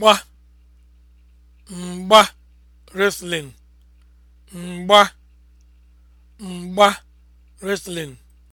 mgba mgba wrestling mgba mgba wrestling